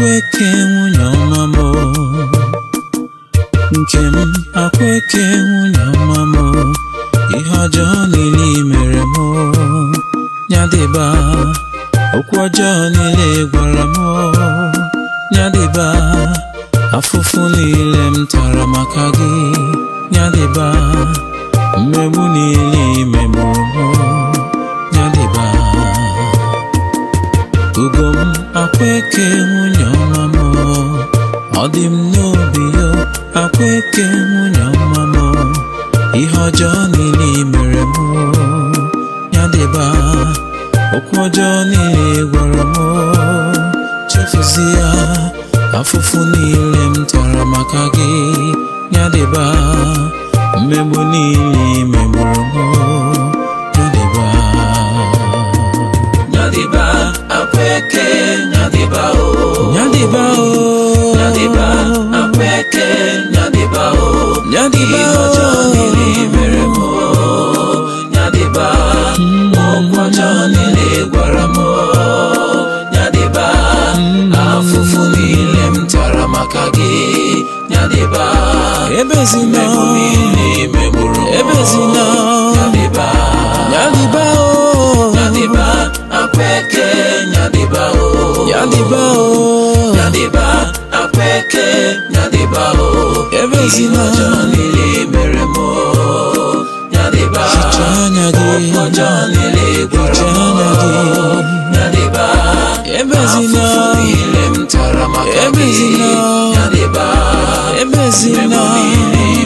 akweke nwunye ọma m nke m akweke nwunye ọma m ihe ọjọọ niile mere m nyadịba okwu ọjọọ niile gwara m nyadịba afụfụ niile m tara maka gị nyadịba mmegbu niile imemụrụ nyadịba ugo m akwa eke nwunye ọma m ọ dị m n'obi yo akwa eke nwunye ọma m ihe ọjọọ niile mere m ya dịba okwu ọjọọ niile gwara m chefuzi ya afụfụ niile m tara maka gị ya dịba mmegbu niile megburu m nyadiba o. Oh. nyadiba apẹkẹ nyadiba o. Oh. nyadiba o. Oh. ìhànjọ nílé bẹ̀rẹ̀ nyadiba ọgbọnjọ nílé gbọrọ mọ́ nyadiba afufu nílé mtara makage nyadiba ebezina ebezina nyadiba nyadiba o. nyadiba apẹkẹ nyadiba o. Yadiba, o oh. nyadiba apeke nyadiba o oh. ebezina lili mere mo nyadiba okpọjọ lili gwara mo nyadiba ebezina afụfụ ile m tara maka gị nyadiba ebezina mmemme niile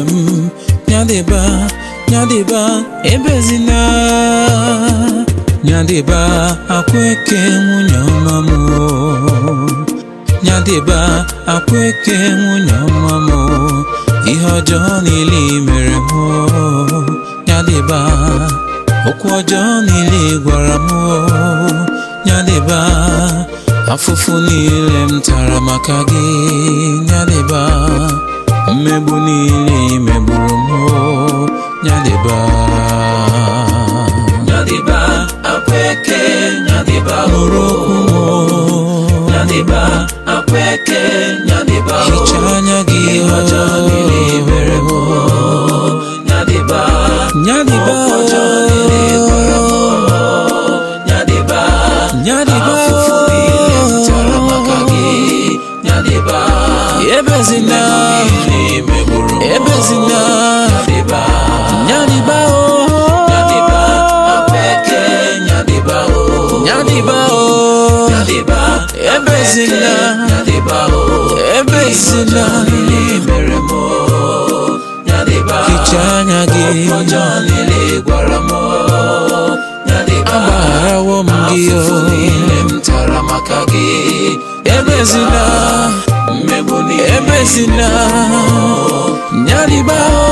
nke m nyadịba nyadịba ebezina nyadịba akwa eke nwunye ọma m nyadịba akwa eke nwunye ọma m ihe ọjọọ niile mere m nyadịba okwu ọjọọ niile gwara m nyadịba afụfụ niile m tara maka gị nyadịba mebunini mebumo nyadiba nyadiba apweke nyadiba orokumo nyadiba apweke nyadiba orokumo Nyaliba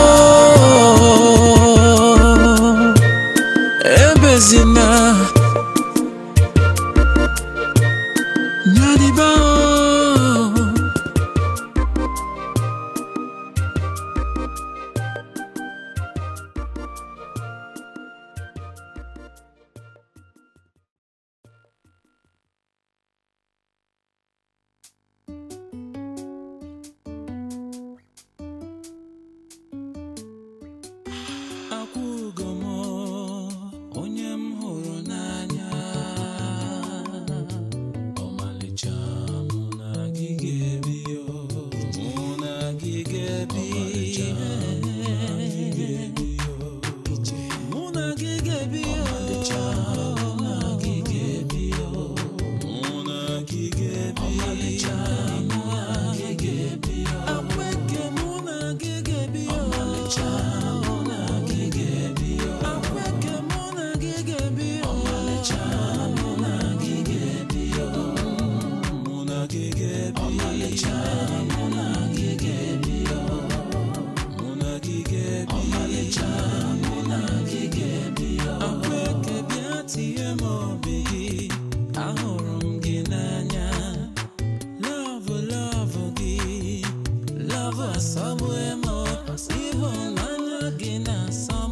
love us, so bueno, si bonana gina, so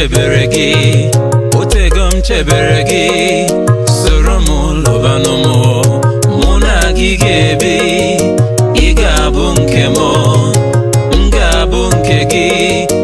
chebere gị otego m chebere gị soro m lụbanụ mụ na gị ga-ebi ị ga-abụ nke m m ga-abụ nke gị